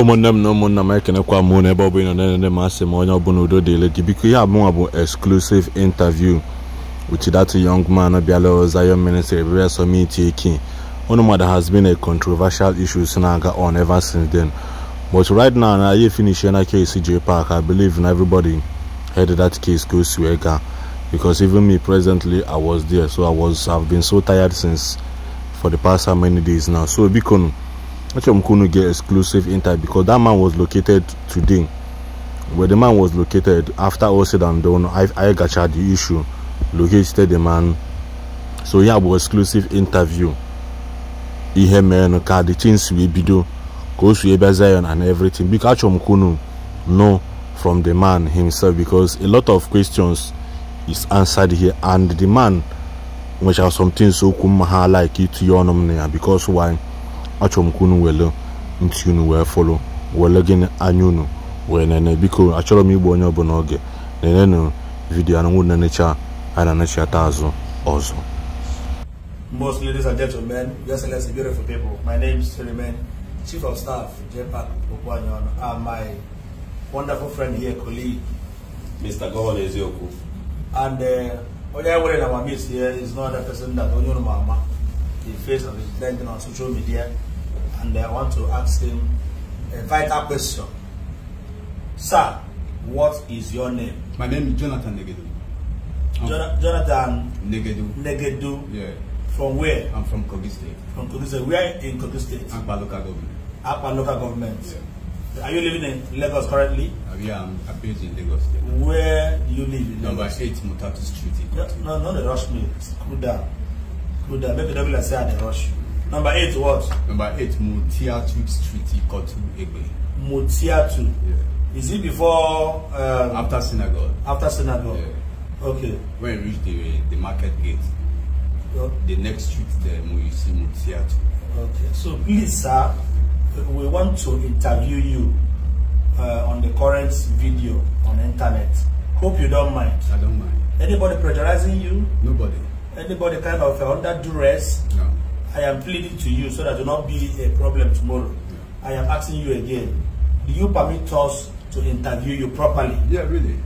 ụmụnne m na ụmụnna m ekenekwa m na ebe ọ bụla na-enene m asị ma onye ọbụla udo dịle gị biko ihe abụọ bụ exclusive interview with that young man bịala Zion Ministry bịara summit eke unu mmadụ has been a controversial issue si na-aga on ever since then but right now na anyị finish na case J Park I believe na everybody heard that case go o si wee gaa because even me presently I was there so I was I've been so tired since for the past how many days now so biko Achom get exclusive interview because that man was located today. Where the man was located, after all said and done, I, I gotcha the issue, located the man. So yeah, an exclusive interview. He mere no ka the things we do, goes to Zion and everything. Because Achom know from the man himself because a lot of questions is answered here and the man which are some things so kuma like it to your because why achọ m ka unu were ntị unu wee gịnị anya unu wee nene biko achọrọ m igbu onye ọbụla oge nenenụ vidiyo anụnwụ na a na-anachata azụ ọzọ Most ladies and gentlemen, your beautiful people. My name is Suleiman, Chief of Staff, JPAC Okwanyon, and ah, my wonderful friend here, colleague, Mr. Governor and uh, I want to ask him a vital question. Sir, what is your name? My name is Jonathan Negedu. Jon Jonathan Negedu. Negedu. Yeah. From where? I'm from Kogi State. From Kogi State. Where in Kogi State? Akpa local government. Akpa local government. Yeah. Are you living in Lagos currently? Uh, yeah, I'm, based in Lagos. State. Where do you live in Number Lagos? 8 Mutatu Street. No, no, no, they rush me. Cool down. Cool down. Maybe don't be like say I rush you. Number eight, what? Number eight, Mutiatu Street, Ikotu Egbe. Mutiatu. Yeah. Is it before? Um, after synagogue. After synagogue. Yeah. Okay. When you reach the the market gate, yep. Oh. the next street there, you see Mutiatu. Okay. So please, sir, we want to interview you uh, on the current video on internet. Hope you don't mind. I don't mind. Anybody pressurizing you? Nobody. Anybody kind of uh, under duress? No. I am pleading to you so that do not be a problem tomorrow. I am asking you again. Do you permit us to interview you properly? Yeah, really.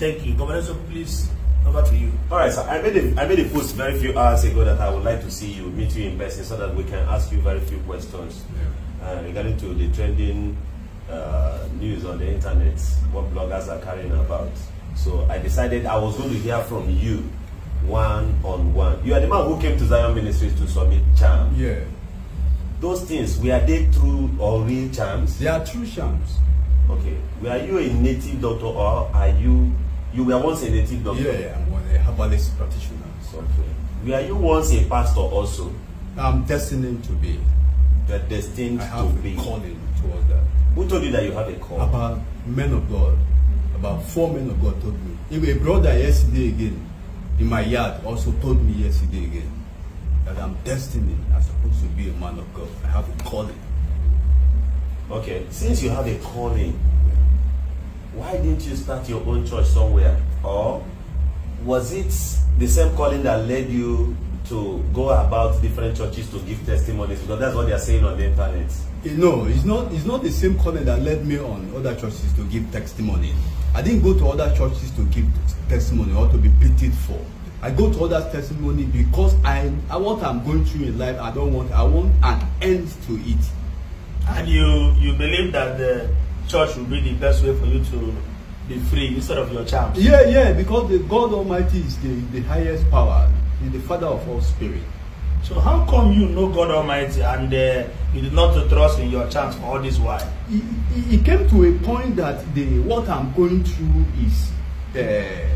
Thank you. Governor, so please, over to you. All right, sir. I made, a, I made a post very few hours ago that I would like to see you, meet you in person so that we can ask you very few questions yeah. uh, regarding to the trending uh, news on the internet, what bloggers are carrying about. So I decided I was going to hear from you one on one. You are the man who came to Zion Ministries to submit charm. Yeah. Those things, were they true or real charms? They are true charms. Okay. Were you a native doctor or are you you were once a native doctor? Yeah, yeah, I'm a herbalist practitioner. Okay. Were you once a pastor also? I'm destined to be. You're destined I have to a be. calling towards that. Who told you that you have a call? About men of God. About four men of God told me. Even a brother yesterday again in my yard also told me yesterday again that I'm destined, I'm supposed to be a man of God. I have a calling. Okay, since you have a calling, why didn't you start your own church somewhere? Or was it the same calling that led you to go about different churches to give testimonies? Because that's what they are saying on the internet. no, it's not, it's not the same calling that led me on other churches to give testimonies. I didn't go to other churches to give testimony or to be pitied for. I go to other testimony because I, I what I'm going through in life, I don't want, I want an end to it. And you, you believe that the church will be the best way for you to be free instead of your charms? Yeah, yeah, because the God Almighty is the, the highest power, He's the Father of all spirit. So how come you know God Almighty and uh, you did not trust in your chance for all this while? It, it, came to a point that the what I'm going through is uh,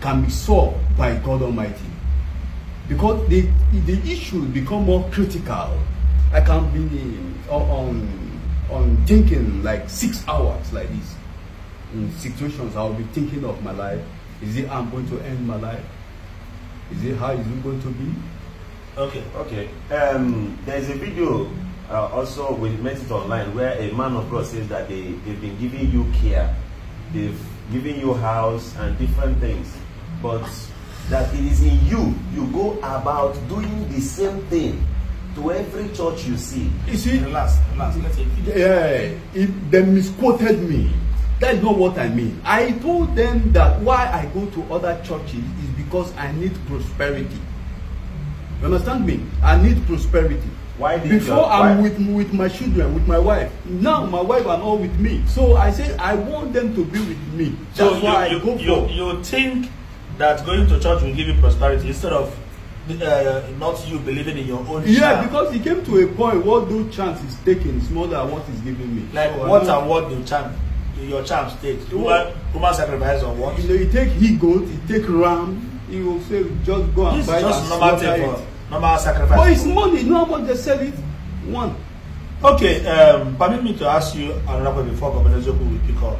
can be solved by God Almighty because the the issue become more critical. I can be on, on thinking like six hours like this in situations. I'll be thinking of my life. Is it I'm going to end my life? Is it how is it going to be? Okay. Okay. Um, there's a video uh, also met it Online where a man of God says that they, they've been giving you care, they've given you house and different things, but that it is in you, you go about doing the same thing to every church you see. You see? Relax, relax, let's Yeah, it, they misquoted me. That's not what I mean. I told them that why I go to other churches is because I need prosperity. You understand me? I need prosperity. Why did Before your, why? I'm with, with my children, with my wife. Now my wife are all with me. So I say I want them to be with me. That's so you, why you, I go you, for. You think that going to church will give you prosperity instead of uh, not you believing in your own yeah because it came to a point what do chance is taking is more than what is giving me like so what and what do chance your chance take human human sacrifice or what you know you take he goat you take ram You go say just go and this buy and slaughter it normal sacrifice. But it's money. You know how much they sell it? One. Okay, um, permit me to ask you another question before Governor Zoku will pick up.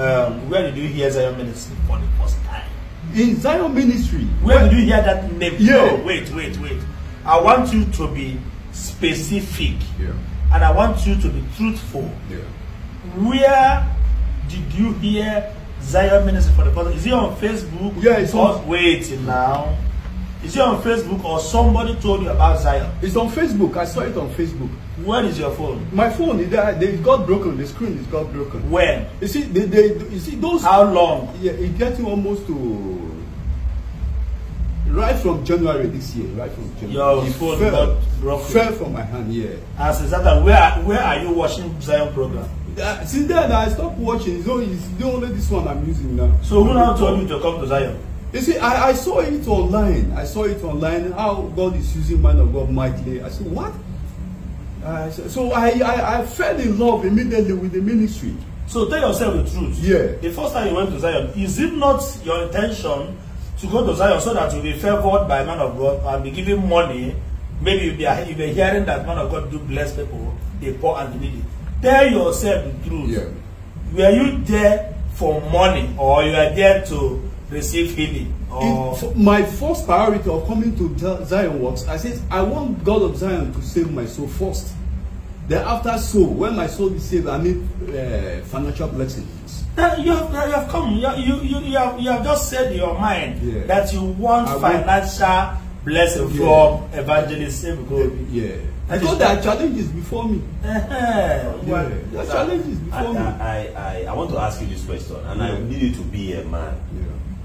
Um, where did you hear Zion Ministry for the first time? In Zion Ministry? Where what? did you hear that name? Yeah. No, wait, wait, wait. I want you to be specific. Yeah. And I want you to be truthful. Yeah. Where did you hear Zion Ministry for the first time? Is it on Facebook? Yeah, it's on. Wait now. Is it on Facebook or somebody told you about Zion? It's on Facebook. I saw it on Facebook. When is your phone? My phone, it, uh, it got broken. The screen is got broken. When? You see, they, they, you see those... How long? Yeah, it gets you almost to... Right from January this year, right from January. Your phone fell, got broken. fell from my hand, yeah. As exactly, where, where are you watching Zion program? Uh, since then, I stopped watching. It's only, it's only this one I'm using now. So who now told you to come to Zion? You see, I, I saw it online. I saw it online how God is using man of God mightily. I said, what? Uh, so I, I, I fell in love immediately with the ministry. So tell yourself the truth. Yeah. The first time you went to Zion, is it not your intention to go to Zion so that you'll be favored by man of God and be given money? Maybe you'll be, you'll be hearing that man of God do bless people, the poor and the needy. Tell yourself the truth. Yeah. Were you there for money or you are there to receive healing? Or... It, my first priority of coming to Zion works, I said, I want God of Zion to save my soul first. Then after soul, when my soul is saved, I need uh, financial blessings. you have, you have come, you, you, you, have, you have just said in your mind yeah. that you want I financial want... blessing yeah. from evangelist Save Gold. Eh, yeah. I thought there are challenges before me. Uh -huh. yeah. There are challenges before I, me. I, I, I, I want to ask you this question, and yeah. I need you to be a man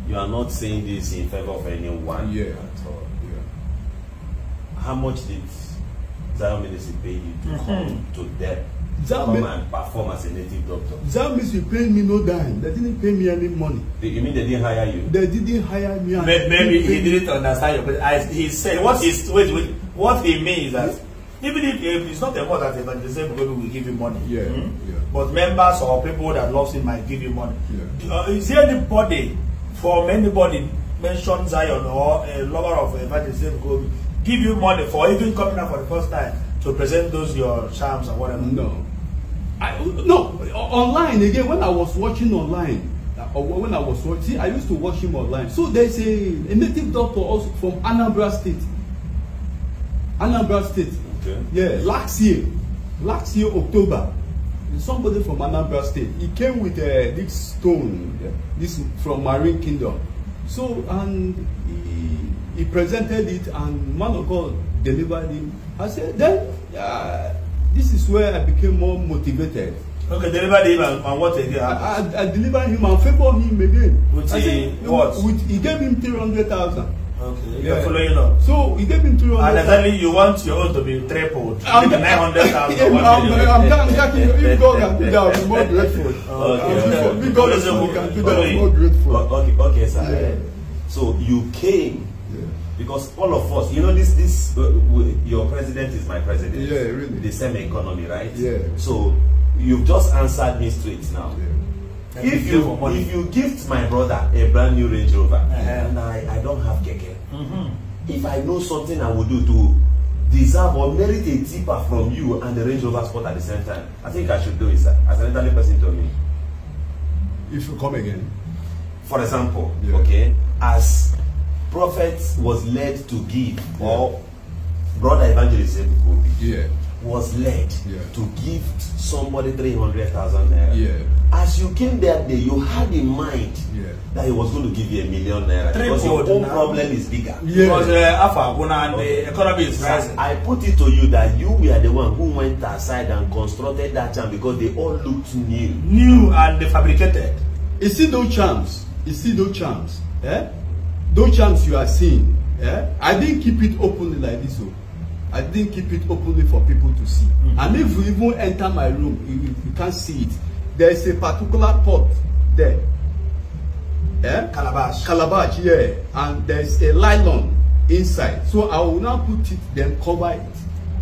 you are not saying this in favor of anyone. Yeah, at all. Yeah. How much did Zion Ministry pay you to mm-hmm. come to them? That come and perform as a native doctor. That means paid me no dime. They didn't pay me any money. You mean they didn't hire you? They didn't hire me. Maybe, maybe he didn't understand you, but I, he said what he's wait, wait what he means is that yeah. even if, if it's not a word that the evangelism people will give you money. Yeah, hmm yeah. But members or people that loves him might give you money. Yeah. Uh, is there anybody For anybody mention Zion or a eh, lover of evangelism Gobi give you money for even coming out for the first time to present those your charms or whatever? No. I, no, online again, when I was watching online, uh, or when I was watching, see, I used to watch him online. So there's a, a native doctor also from Anambra State. Anambra State. Okay. Yeah, last year, last year, October, somebody from Anambra State. He came with uh, this stone, this from Marine Kingdom. So, and he, he presented it, and man of God delivered him. I said, then uh, this is where I became more motivated. Okay, delivered him and, and what again? I, I, I delivered him and favored him again. With I said, what? With, he gave him three hundred thousand. Okay. Yeah. You're following up. So we gave into 300. And exactly you want your own to be tripled. I'm 900,000. I'm, I'm, I'm, I'm thanking you. If God can do that, I'm. be more grateful. Okay. okay. If God okay. can do that, I'm. be more grateful. Okay, okay sir. Yeah. So you came yeah. because all of us, you know, this, this, uh, your president is my president. Yeah, really. The same economy, right? Yeah. So you've just answered me straight now. Yeah if you if you gift my brother a brand new range rover uh -huh. and i i don't have keke mm -hmm. if i know something i would do to deserve or merit a tipper from you and the range rover sport at the same time i think i should do it sir as an elderly person to me. if you come again. for example yeah. okay as prophet was led to give yeah. or brother evangelist said, go Yeah was led yeah. to give somebody three hundred thousand naira. Yeah. As you came that day, you had in mind yeah. that he was going to give you a million naira. Three because your own problem is bigger. Yeah. Because uh, Alpha, and the economy is rising. I put it to you that you were the one who went aside and constructed that charm because they all looked new. New and fabricated. You see those charms. You see those charms. Eh? Those charms you are seeing. Eh? I didn't keep it openly like this. Oh. I didn't keep it openly for people to see. Mm -hmm. And if you even enter my room, you, you can't see it. There is a particular pot there. yeah, Calabash. Calabash, yeah. And there's a nylon inside. So I will now put it, then cover it.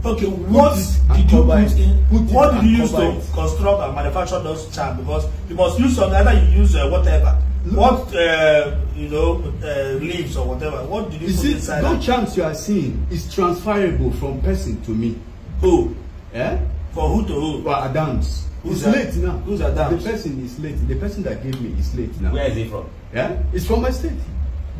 Okay, what did you put in? Put what did you use to it. construct and manufacture those charms? Because you must use some, either you use uh, whatever what uh, you know uh, leaves or whatever what did you, you put see, inside no that? charms you are seeing is transferable from person to me who eh for who to who for adams who's that? late now who's adams the person is late the person that gave me is late now where is he from yeah it's from my state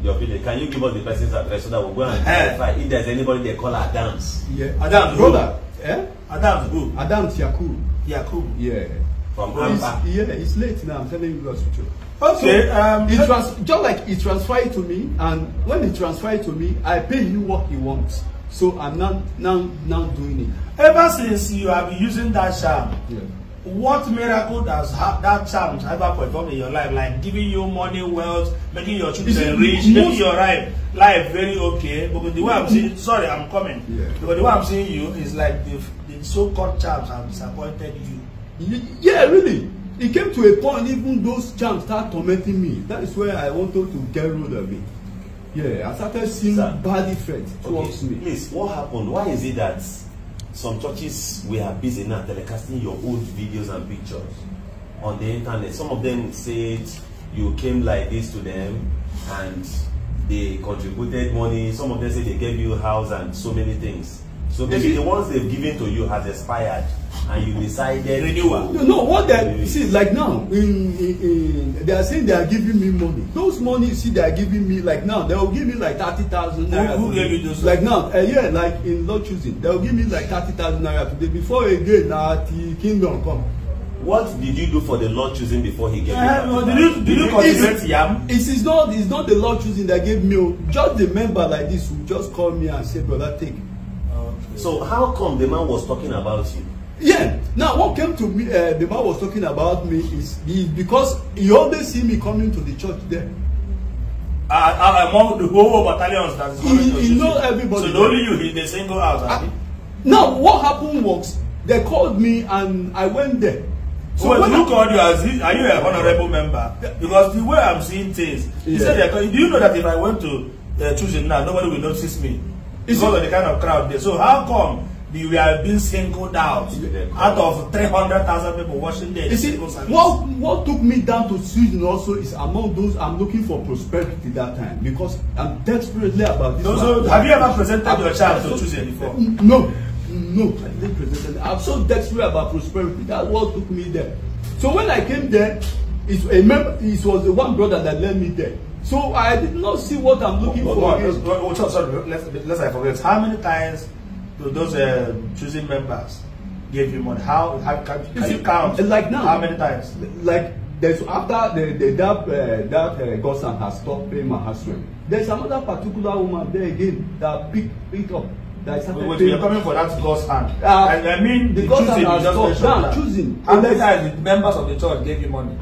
your village can you give us the person's address so that we we'll go and verify if there's anybody they call adams yeah adams brother who? eh adams who adams yakub yakub yeah from Amba. yeah it's late now i'm telling you guys the truth Okay. So, um, he trans just like he transferred it to me, and when he transferred it to me, I pay you what he wants. So I'm not now now doing it. Ever since you have been using that charm, yeah. what miracle does ha that charm ever performed in your life? Like giving you money, wealth, making your children rich, most... making your life life very okay. Because the way I'm seeing, sorry, I'm coming. Yeah. Because the way I'm seeing you is like the, the so-called charms have disappointed you. Yeah, really. It came to a point, even those jams start tormenting me. That is where I wanted to get rid of it. Yeah, I started seeing Sir, bad effects towards okay, me. Please, what happened? Why is it that some churches we are busy now telecasting your old videos and pictures on the internet? Some of them said you came like this to them and they contributed money. Some of them said they gave you a house and so many things. So maybe the ones they've given to you has expired. and you decided renewal. you know what they see like now in, in, in, they are saying they are giving me money those money you see they are giving me like now they will give me like thirty thousand naira who gave you those like now uh, yeah like in law choosing they will give me like thirty thousand naira today before again na uh, till kingdom come. what did you do for the lord choosing before he gave uh, you did you did you cultivate yam. it is not it is not the lord choosing that gave me oh, just the member like this who just called me and said brother take. Okay. so how come the man was talking about you Yeah. Now, what came to me, uh, the man was talking about me is, is because he always see me coming to the church there. Uh, among the whole battalions that is coming he, to he know everybody. So only you ah, he they single out. Uh, now, what happened was they called me and I went there. So well, who called you as are you a honourable member? Because the way I'm seeing things, yeah. he said, do you know that if I went to uh, choosing now, nobody will notice me because of the kind of crowd there. So how come we were being singled out out of 300,000 people watching this. You see, what, what took me down to Sweden also is among those I'm looking for prosperity that time because I'm desperately about this. No, so have you ever presented your child to so, before? No, no, I didn't present it. I'm so desperate about prosperity. That's what took me there. So when I came there, it, member. it was the one brother that led me there. So I did not see what I'm looking oh, for. Oh, sorry, let's, let's I forget. How many times to those uh, choosing members gave you money? How, how can, can you count? Like now, how many times? Like there's after the, the that uh, that uh, Gosan has stopped paying my husband. There's another particular woman there again that picked picked up. That started wait, you're coming for that God's hand. Uh, and I mean, the, the God's has stopped. Now, choosing. How many times the members of the church gave you money?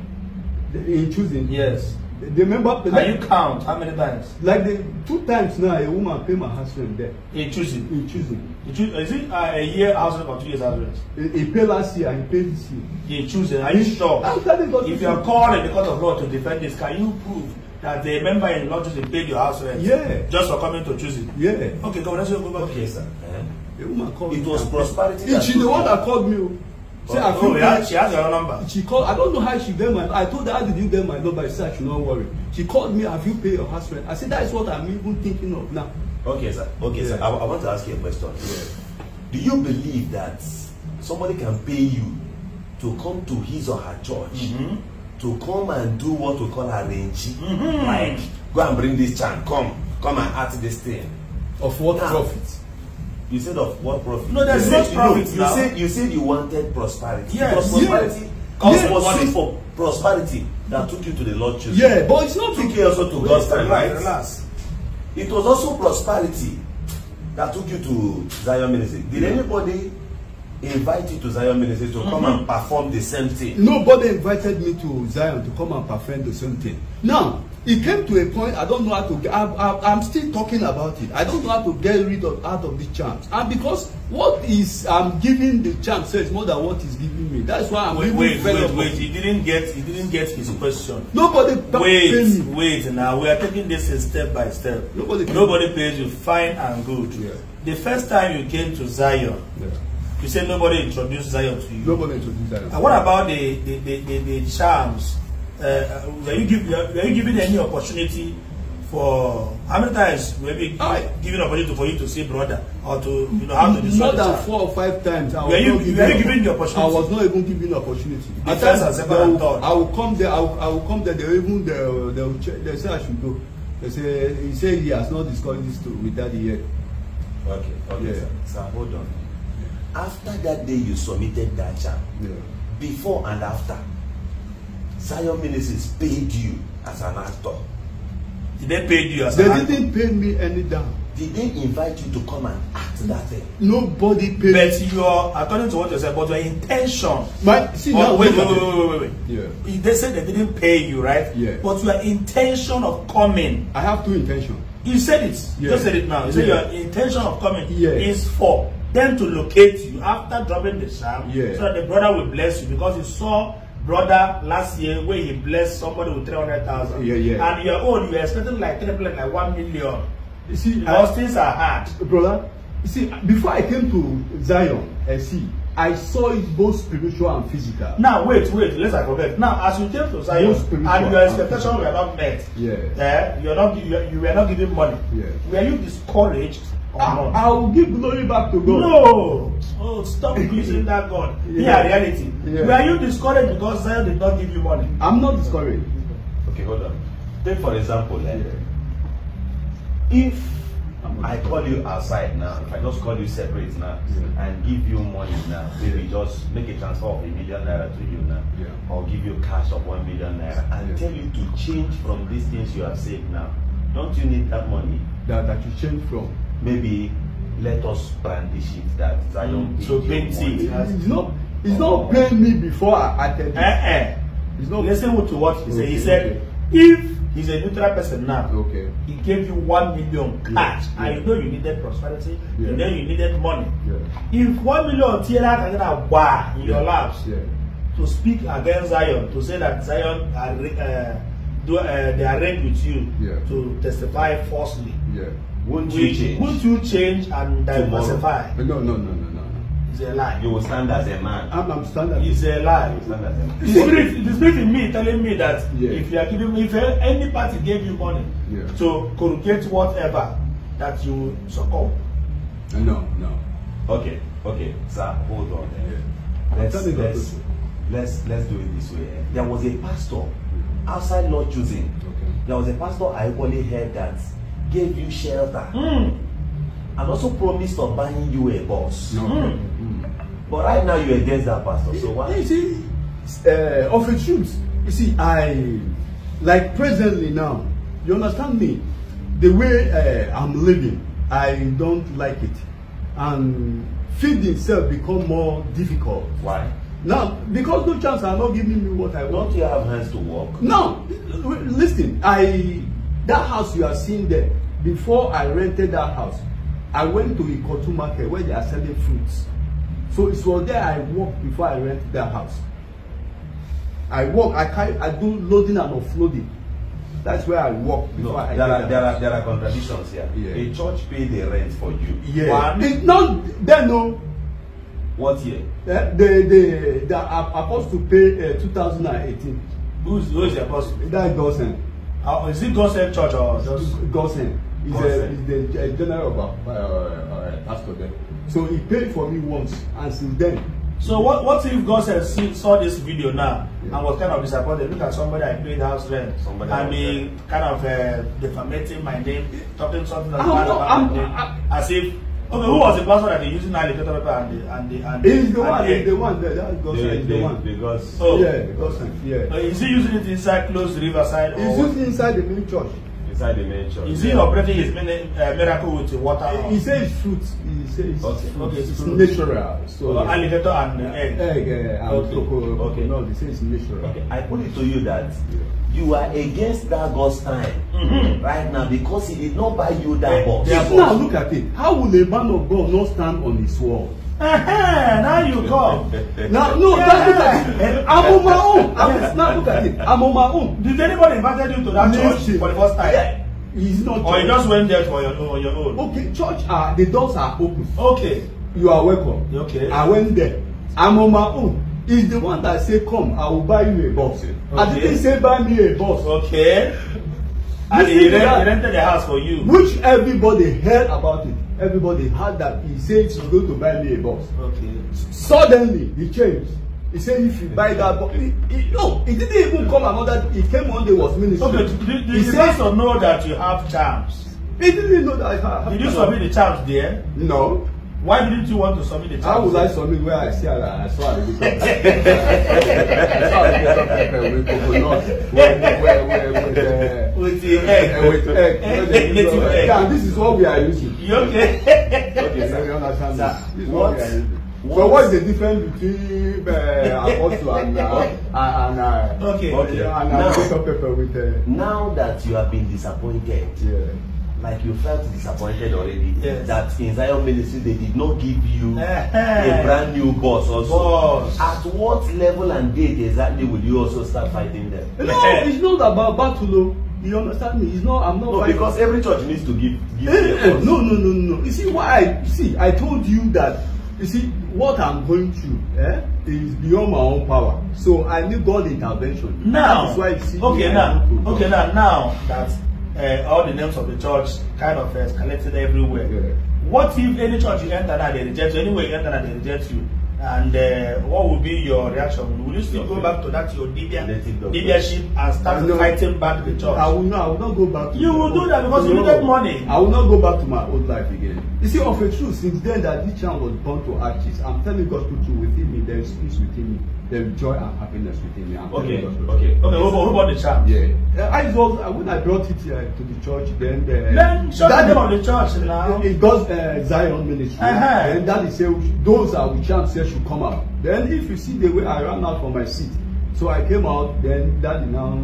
In choosing. Yes the member. Can you count how many times? Like the two times now, a woman pay my husband there. In choosing. In choosing. In Is it uh, a year husband or two years husband? He, he pay last year and he pay this year. In choosing. Are you sure? I'm telling God. If you are calling in the court of law to defend this, can you prove? that the member in law choosing paid your house rent. Yeah. Just for coming to choosing. Yeah. Okay, come. bless you. Go back. Okay, sir. Uh -huh. The woman called it me. was prosperity. She's the one that called me. Oh. Say, oh, I feel oh, she has your number. She called. I don't know how she get my. I told her, how did you get my number? She said, I should not worry. She called me, have you paid your house rent? I said, that is what I'm even thinking of now. Okay, sir. Okay, yeah. sir. I, I want to ask you a question. Yeah. Do you believe that somebody can pay you to come to his or her church mm -hmm. to come and do what we call arrange? Mm -hmm. Like, go and bring this chant. Come, come and act this thing. Of what now, profit? You said of what profit? No, there's no profit. now. you said you said you wanted prosperity. Yes. Because prosperity yes. Cause yeah. was it for prosperity that took you to the Lord Jesus? Yeah, but it's not took you also to God's time, right? Relax. It was also prosperity that took you to Zion Ministry. Did yeah. anybody invite you to Zion Ministry to mm -hmm. come and mm-hmm. perform the same thing? Nobody invited me to Zion to come and perform the same thing. Now, it came to a point I don't know how to get I, I, I'm still talking about it I don't know how to get rid of out of the chance and because what is I'm giving the chance says more than what is giving me that's why I'm wait wait wait wait he didn't get he didn't get his question nobody wait wait now we are taking this step by step nobody nobody pays you fine and good yeah. the first time you came to Zion yeah. you said nobody introduced Zion to you nobody introduced Zion and what about the the the, the, the charms uh, were you give were you given any opportunity for how many times were we oh. given opportunity for you to say brother or to you know how to describe more than four or five times I were you were you given the opportunity I was not even given opportunity the at first and second I will come there I will, I will come there they even they will, they will check they say I should go they say he say he has not discussed this to with daddy yet okay okay yeah. sir sir hold on after that day you submitted that charm yeah. before and after Zion Ministries paid you as an actor. Did they pay you as they an actor? They didn't pay me any down. Did they invite you to come and act that thing? Nobody paid. But you're according to what you said, but your intention. But see oh, now, wait, wait, wait, wait, wait, wait. Yeah. They said they didn't pay you, right? Yeah. But your intention of coming. I have two intentions. You said it. Yeah. Just said it now. You yeah. said your intention of coming yeah. is for them to locate you after dropping the sham, yeah. so that the brother will bless you because he saw brother last year where he blessed somebody with 300,000. Yeah, yeah. And your own, you're expecting like 3 million, like one million. You see, those things are hard. Brother, you see, before I came to Zion I see, I saw it both spiritual and physical. Now, wait, wait, let's I forget. Now, as you came to Zion and your expectations were not met, yeah. eh, you're not, you, you were not giving money, yeah. were you discouraged I, I, will give glory back to God. No. Oh, stop using that God. yeah. reality. Yeah. Were you discouraged because Zion did not give you money? I'm not discouraged. Okay, hold on. Take for example, like, yeah. if I call you outside now, if I just call you separate now yeah. and give you money now, maybe just make a transfer of a million naira to you now, yeah. or give you cash of one million naira and tell you to change from these things you have saved now. Don't you need that money? That, that you change from. maybe let us brand the it that Zion. Mm. So paint it. It's not. It's not paying me before I attend. Eh eh. It's not. Listen to what he okay. said. He said if he's a neutral person now. Okay. He gave you one million cash, yeah. and yeah. you know you needed prosperity. Yeah. You know you needed money. Yeah. If one million TLA can get a bar in yeah. your laps yeah. to speak against Zion, to say that Zion are, uh, do, uh, they are ranked with you yeah. to testify falsely. Yeah. Won't you change? Won't you change and diversify? No, no, no, no, no. It's a lie. You will stand as a man. I'm, I'm standing. It's a lie. You stand as a man. The spirit, the spirit in me telling me that yeah. if you are giving me, if any party gave you money yeah. to corrugate whatever, that you succumb. No, no. Okay, okay, sir, hold on. Yeah. Let's, let's, let's, let's do it this way. There was a pastor outside Lord choosing. Okay. There was a pastor I only heard that gave you shelter mm. and also promised of buying you a bus. No. Mm. Mm. But right now you're against that pastor. So why? You see, uh, of a truth, you see, I like presently now. You understand me? The way uh, I'm living, I don't like it, and feeding itself become more difficult. Why? Now, because no chance are not giving me what I want. Don't you have hands to work? No, listen. I that house you are seeing there before I rented that house, I went to Ikotu market where they are selling fruits. So it was there I worked before I rented that house. I walk. I carry, I do loading and offloading. That's where I walk before no, I there are, there are there are contradictions here. Yeah. A church pay the rent for you. Yeah. One, it's not then no. What year? Uh, the the the apostle pay uh, eh, 2018. Who's who's the apostle? That Gosen. Uh, is it Gosen Church or just Gosen? He's, a, he's the general of our uh, uh, uh, pastor then. So he paid for me once, and since then. So what, what if God says, see, saw this video now yeah. and was kind of disappointed? Look at somebody I paid house rent somebody I mean, kind of uh, defamating my name, talking something that's bad about my name, I'm, as if Okay, who was the person that they using now the total paper and the and the and the? He's the one. He's the one. That, that God the, the, the one. Because oh yeah, because yeah. Uh, is he using it inside closed riverside? He's or using inside the main church inside the mansion. Is he yeah. operating his uh, miracle with water? He, he says fruit. He says okay. fruit. Okay, it's, fruit. natural. So uh, alligator and uh, egg. Egg, yeah, and okay. cocoa. Okay. No, he says natural. Okay. I put it to you that yeah. you are against that God's time mm-hmm. right now because he did not buy you that eh, box. Now look at it. How will a man of God not stand on his wall? now you come. now, no, that's it. Eh, I'm on my own. I'm, now look at it. I'm on my own. Did anybody invite you to that Listen. church for the first time? Yeah. He's not. Or you just went there for your, on your own. Okay, church, uh, the doors are open. Okay. You are welcome. Okay. I went there. I'm on my own. He's the one that said, Come, I will buy you a bus. Okay. I didn't say, Buy me a bus. Okay. and he rented the house for you. Which everybody heard about it everybody had that he said he's going to buy me a bus okay suddenly he changed he said if you buy that bus he he no he didn't even come another he came one day was minister okay did, did, did he says to know that you have charms he didn't know that i have did you submit the charms there no why didn't you want to submit the charms how would i submit where i see that i saw i dey talk i saw i dey talk pepper with coconut with with with with uh, with egg with egg and this is what we are using okay? okay, so you understand Sir, What? What? So what is the difference between uh, apostle and uh, and uh, okay, okay. and uh, now, with uh, now that you have been disappointed, yeah. like you felt disappointed already yes. that in Zion ministry they did not give you a brand new boss also. Boss. At what level and date exactly will you also start fighting them? No, it's not about battle. You understand me? It's not, I'm not. No, fighting. because every church needs to give. give eh, eh no, no, no, no. You see why? I, see, I told you that. You see what I'm going through. Eh, is beyond my own power. So I need God intervention. Now, that is why you see. Okay, now, okay, now, now that uh, all the names of the church kind of uh, collected everywhere. Yeah. What if any church you enter that they reject you? Anyway, you enter that they reject you? And uh, what will be your reaction? Will you still okay. go back to that your leadership and start no, fighting back the church? I will not. I will not go back. To you will do that because no, you needed money. I will not go back to my old life again. You see, of a truth, since then that this child was born to artists, I'm telling God to do with him there is peace within me. There is joy and happiness within me. I'm okay, okay, okay. Okay, what, about the child? Yeah. I was, when I brought it uh, to the church, then the. Uh, then, show that, the name of the church now. It goes uh, Zion Ministry. Uh-huh. And that is, uh, those are which chant said should come out. Then, if you see the way I ran out from my seat, so I came out, then that now.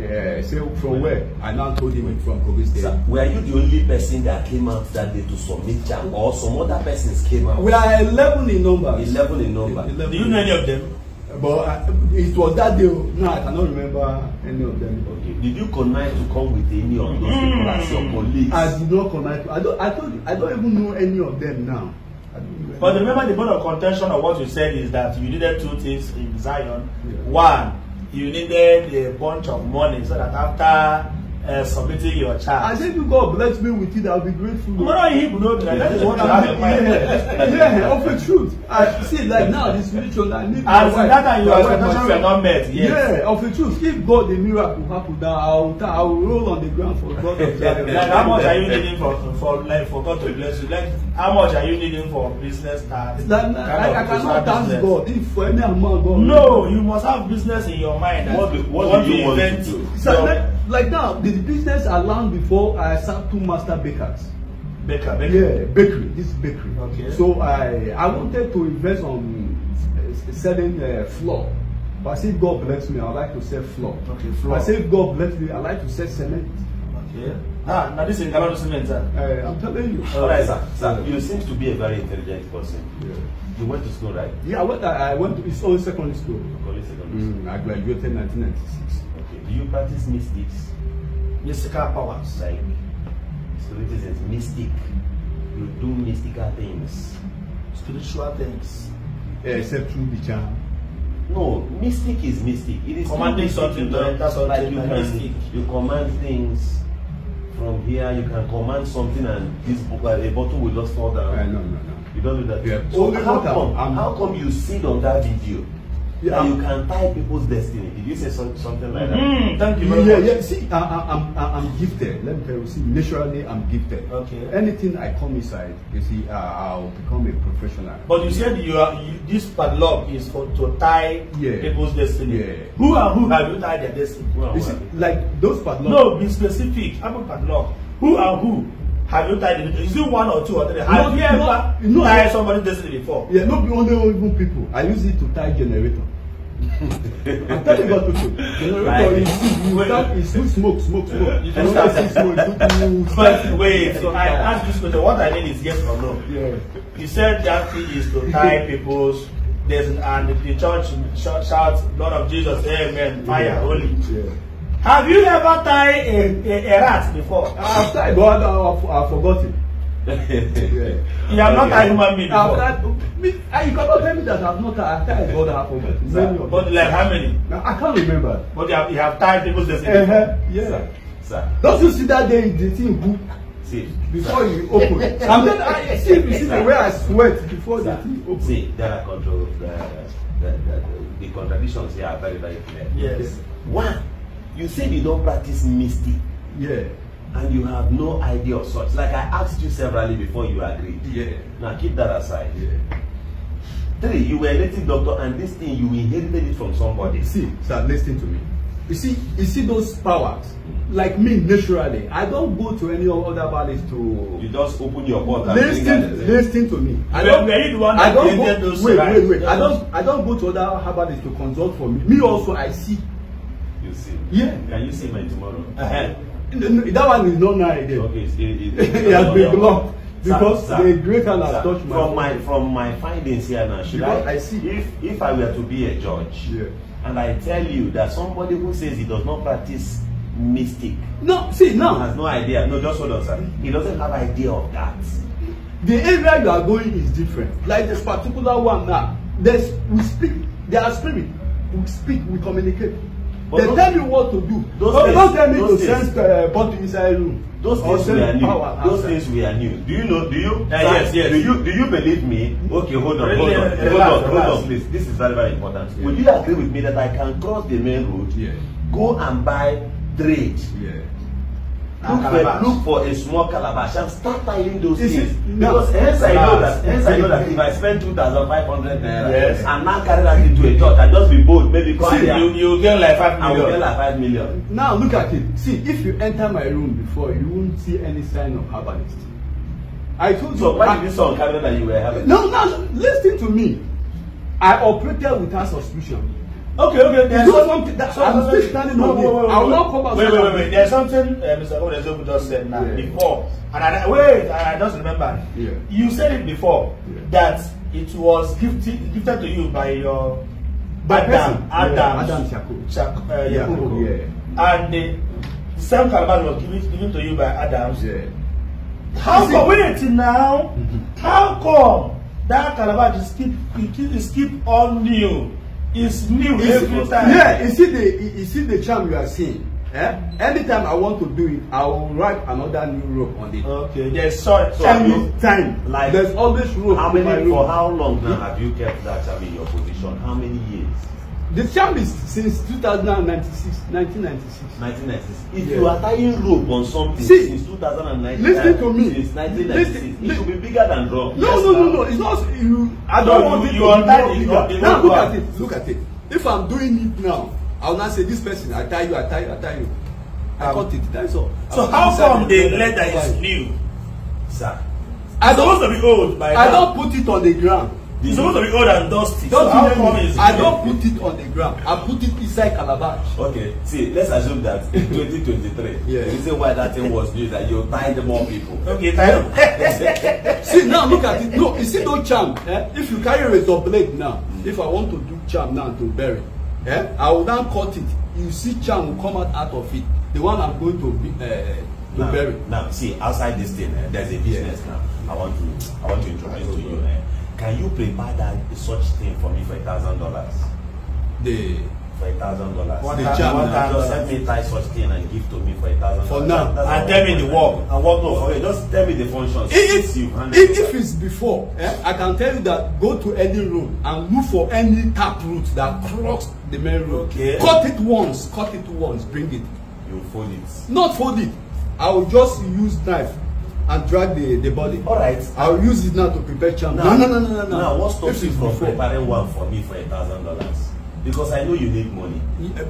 Yeah. say from where i now told him from kogi state. sir were you the only person that came out that day to submit jam or some other persons came out. we are eleven in number. eleven in number. 11. do you know any of them. but I, uh, it was that day no i cannot remember any of them. okay did you connive to come with any of those hmm. people as your colleagues. i did not connive i don't i don't i don't even know any of them now. but remember the point of contention of what you said is that you needed two things in zion yeah. one you needed a bunch of money so that after uh, submitting your child. I said, if God bless me with it, I'll be grateful. I'm not in Hebrew, no, that is what I'm my. Yeah, yeah, of the truth. I see, like now, this religion, I need my As wife. that and your expectations were not met, yes. Yeah, of the truth. If God, the miracle happen, that I will, I will roll on the ground for God. like, how much are you needing for, for, like, for God to bless you? Like, how much are you needing for business start? Like, like, I cannot thank God if for any amount God. No, you must have business in your mind. What do, what, what do you want to do? like now the business I learned before I sat two master bakers. Baker, bakery. Yeah, bakery. This bakery. Okay. So I I wanted to invest on cement eh, selling uh, eh, floor. But I God bless me, I like to sell floor. Okay, floor. I say God bless me, I like to sell cement. Ah, now this is Ghana cement, sir. Uh, I'm telling you. All right, sir. Sir, you seem to be a very intelligent person. Yeah. You went to school, right? Yeah, I went. I went to. It's only secondary school. Only secondary mm, school. Mm, I graduated 1996. Do you practice mystics? Mystical powers. Like spiritism, mystic. You do mystical things. Spiritual things. Yeah, except through the charm. No, mystic is mystic. It is commanding something. Not, that's what like you can. Mystic. You command things from here. You can command something, and this uh, a bottle will just fall down. Uh, no, no, no. You don't do that. Yeah. So Only how water. come? How come you sit on that video? yeah. you can tie people's destiny. Did you say some, something like that? Mm, thank you very yeah, much. Yeah, see, I, I, I'm, I'm gifted. Let me tell you, see, naturally, I'm gifted. Okay. Anything I come inside, you see, uh, I'll become a professional. But you said you are you, this padlock is for to tie yeah. people's destiny. Yeah. Who are who have you tied their destiny? Who you who see, like those padlocks? No, be specific. I'm a padlock. Who are who Have you tied the Is it one or two or three? Have no, you ever no, tied no, somebody this before? Yeah, not be only even people. I use it to tie generator. I'm you about people. Generator is, you start, is you smoke, smoke, smoke. You don't see smoke. Do, do, but wait, so I ask this question. What I mean is yes or no. Yeah. You said that thing is to tie people's there's an, and the church shout, shout, Lord of Jesus, Amen, fire, yeah. holy. Yeah. Have you ever tied a, a, a rat before? I've tied, but I've, I've forgotten. yeah. You have not tied human being before. tied, me, you cannot tell me that I've not tied. I've tied God half forgotten? it. But like how many? I can't remember. But you have, you have tied people's destiny. Uh -huh. Yeah. Sir. Sir. Don't you see that day the thing who See. Before sir. you open. I'm not. I see, you see the way I sweat before sir. the thing open. See, there are control. The, the, the, the, the contradictions here are very, very clear. Yes. One. You said you don't practice mystic. Yeah. And you have no idea of such. Like I asked you severally before you agreed. Yeah. Now keep that aside. Yeah. Three, you were a native doctor and this thing, you inherited it from somebody. See, start listening to me. You see, you see those powers? Like me, naturally. I don't go to any other valleys to... You just open your mouth and... Listen, listen to me. I don't, were the one I don't go, those Wait, wait, wait. I don't, I don't go to other herbalists to consult for me. Me also, I see You see? Yeah. Can you see my tomorrow? Uh-huh. that one is not now again. Eh? Okay, it's, it, it, it has been blocked because sir, the greater hand has touched my from my from my findings here now. Should because I, I see if if I were to be a judge yeah. and I tell you that somebody who says he does not practice mystic, no, see now has no idea. No, just hold on, sir. He doesn't have idea of that. The area you are going is different. Like this particular one now, there's we speak. There are spirit. We speak. We communicate they tell you what to do. so things, don't tell me to send uh, inside room. Those things we are new. those things we are new. Do you know? Do you? Uh, yes, yes. Do you? Do you believe me? Okay, hold on, hold on, relax, hold on, relax. hold on, please. This is very, very important. Yeah. Would you agree with me that I can cross the main road, yeah. go and buy trade, yeah look for look for a small calabash and start tying those is things it, because hence i know that hence i know that if i spend two thousand five hundred naira yes. and now carry that into a church i just be bold maybe come see, you you get like five million i will get like five million. now look at it see if you enter my room before you won't see any sign of herbalist i told so you so why did you sound carry that you were having? no no listen to me i operated without suspicion Okay, okay. There's you something. That's what I'm still standing on. No, I will not come back. Wait, wait, wait, wait. There's something uh, Mr. Odezogu just said now yeah. before, and I wait. And I just remember. Yeah. You said it before yeah. that it was gifted gifted to you by your by Adam person. Adam yeah. Adam Shako. Shako. Uh, yeah. Yakubu. Yeah. And the, the same calabash was given given to you by Adam. Yeah. How come? It? Wait now. Mm-hmm. How come that calabash is keep is keep on you? is new is, every time. Yeah, you see the you see the charm you are seeing. Eh? Anytime I want to do it, I will write another new rope on it. Okay. Yes. such so every time. Like there's always rope. How many for how long now hmm? have you kept that charm in your position? How many years? The term is since 2096. 1996. 1996. If yes. you are tying rope on something See, since 2019, listen to me. Since 1996, listen, it should be bigger than rope. No, yes, no, no, no. It's not. You, I don't so want you, it to be more bigger. Now look at it. Look at it. If I'm doing it now, I will not say this person. I tie you. I tie you. I tie you. I um, cut it. That's all. So how come the leather is new, sir? I don't, supposed to be old by now. I don't put it on the ground. It's supposed to be old and dusty. Don't so how come is it? I don't put it on the ground. I put it inside calabash. Okay, see, let's assume that in 2023, yeah. the reason why that thing was new is that you tied more people. Okay, tie see, now look at it. No, you see, no charm. Eh? If you carry a razor blade now, mm. if I want to do charm now to bury, eh? I will now cut it. You see, charm will come out, out of it. The one I'm going to be. Uh, to now, bury. Now, see, outside this thing, eh, there's a business yeah. now. I want to, I want to introduce to you. Eh, Can you prepare that such thing for me for a thousand dollars? The for a thousand dollars. What the charm? What time? Just help me tie such thing and give to me for a thousand. For now, and tell me the work. And what no? Okay, just tell me the functions. If, if, you if, if it's before, eh, I can tell you that go to any room and look for any tap root that cross the main road. Okay. Cut it once. Cut it once. Bring it. You fold it. Not fold it. I will just use knife and drag the the body. all right i will use it now to prepare charm. no no no no no now what stops you from preparing one for me for a thousand dollars because i know you need money. Yeah,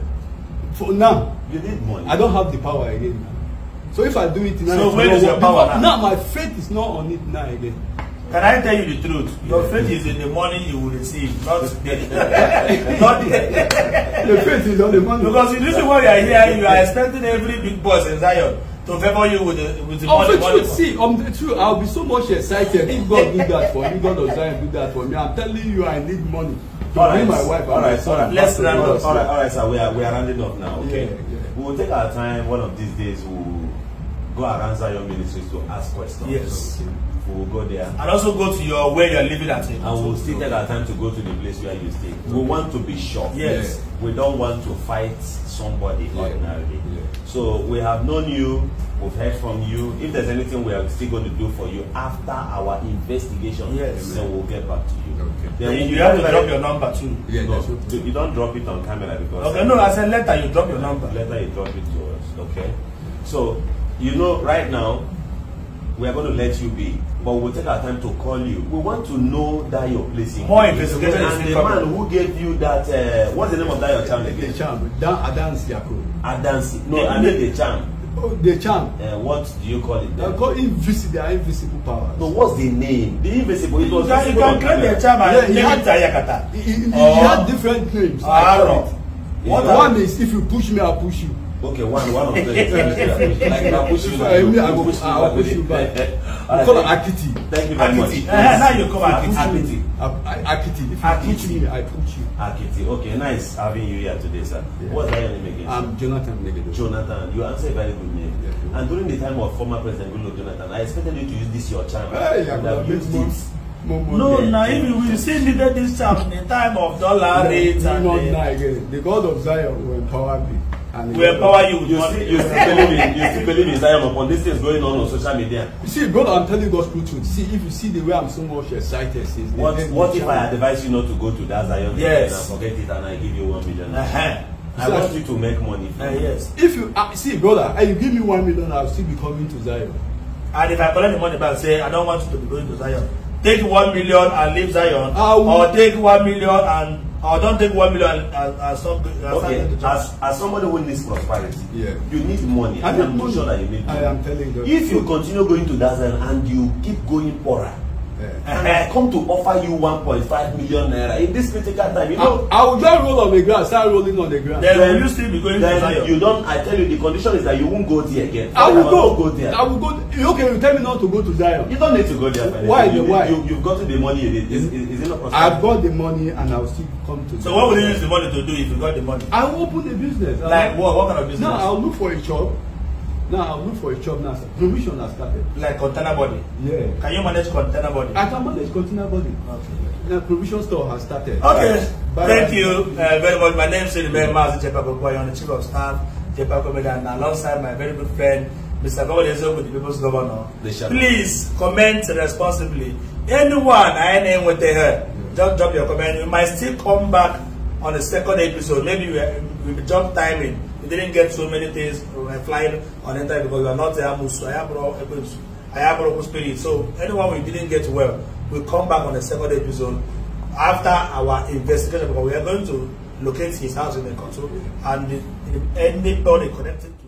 for now. you need money. i don't have the power again now. so if i do it now. so where is your power now. now my faith is not on it now again. Can I tell you the truth? Your faith is in the money you will receive, not the not the, the faith is on the money. Because the reason why you are here, you are expecting every big boss in Zion to favour you with the with the oh, money. Of um, the truth, see, um, true. I'll be so much excited if God do that for me, God of Zion do that for me. I'm telling you, I need money. To all right, my wife all right, all right. Let's round up. All right, all right, sir. We are we are rounding up now. Okay. Yeah, yeah. We will take our time. One of these days, we go around Zion Ministries to ask questions. Yes. Okay. we will go there. And also go to your where you're living at. And we'll still take our time to go to the place where you stay. We want to be sure. Yes. We don't want to fight somebody yeah. ordinarily. Yeah. So we have known you, we've heard from you. If there's anything we are still going to do for you after our investigation, yes. then we'll get back to you. Okay. Then you have to drop your number too. Yeah, no, you don't drop it on camera because. Okay, no, I said letter you drop your number. Letter you drop it to us, okay? So, you know, right now, we are going to let you be, but we will take our time to call you. We want to know that your place in. More investigation is the man who gave you that. Uh, what's the name of that your charm again? The charm. Dan Adansi Yako. Adansi. No, I mean the charm. Oh, the charm. Uh, what do you call it? Then? I call invisible. They are invisible powers. No, what's the name? The invisible. It was. You can, can create the charm and yeah, he, Yakata. He, he, he, he had oh. different names. Ah, I don't know. one is if you push me, I push you. Okay, one, one of the. I I'll push you back. I'll push you back. push you back. We call her Akiti. Thank you very Akiti. much. Now you call her Akiti. Akiti. Akiti. I push you. Akiti. Okay, nice having you here today, sir. What What's your name again? I'm Jonathan Negedo. Jonathan, you answer a very good name. And during the time of former President Goodluck Jonathan, I expected you to use this your charm. Hey, yeah, I've used it. Moment no, now if still needed this charm in the time of dollar rates and. The God of Zion will empower me. And we empower you. You see, you still believe in you still believe in Zion upon this is going on on social media. You see, God, I'm telling God's truth. See, if you see the way I'm so much excited, says what what if I advise you not to go to that Zion yes. and forget it and I give you one million? Uh-huh. I so want you to make money. Uh, yes. If you uh, see, brother, and uh, you give me one million, I'll still be coming to Zion. And if I collect the money back, say I don't want you to be going to Zion. Take one million and leave Zion, I will, or take one million and I oh, don't think one million as, as, okay. as, as somebody who needs prosperity, yeah. you need money. I, I am money. sure that you need money. I am telling you. If you continue going to that and you keep going poorer, I come to offer you one point five million naira in this critical time. You know, I, I will just roll on the ground, start rolling on the ground. Then, then you still be going then to Zion. You don't. I tell you, the condition is that you won't go there again. I will go. go there. I will go. Okay, you tell me not to go to Zion. You don't need to go there. Why? You, Why? You, you've got the money. It is, is, is it not possible? I've got the money, and I'll still come to. So what will you use the money to do if you got the money? I will open a business. Like what? What kind of business? No, I'll look for a job. Now look for a job now. Provision has started. Like container body? Yeah. Can you manage container body? I can manage container body. Okay. Now provision store has started. Okay. Bye. Thank Bye. you uh, very much. My name is Silibe Mazi Jepakokwa. I'm the chief of staff, Jepakomeda, and alongside my very good friend, Mr. Gobodezo, with the people's governor. Please comment responsibly. Anyone I name what they heard, yeah. just drop your comment. You might still come back on the second episode. Maybe we, we jump timing. We didn't get so many things my flying on enter because we are not Ayamusu, Ayamoroku spirit. So anyone we didn't get well, we come back on the second episode after our investigation because we are going to locate his house in the country and anybody connected